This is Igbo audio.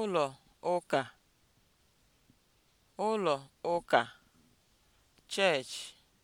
ụlọ ụka ụlọ ụka (church)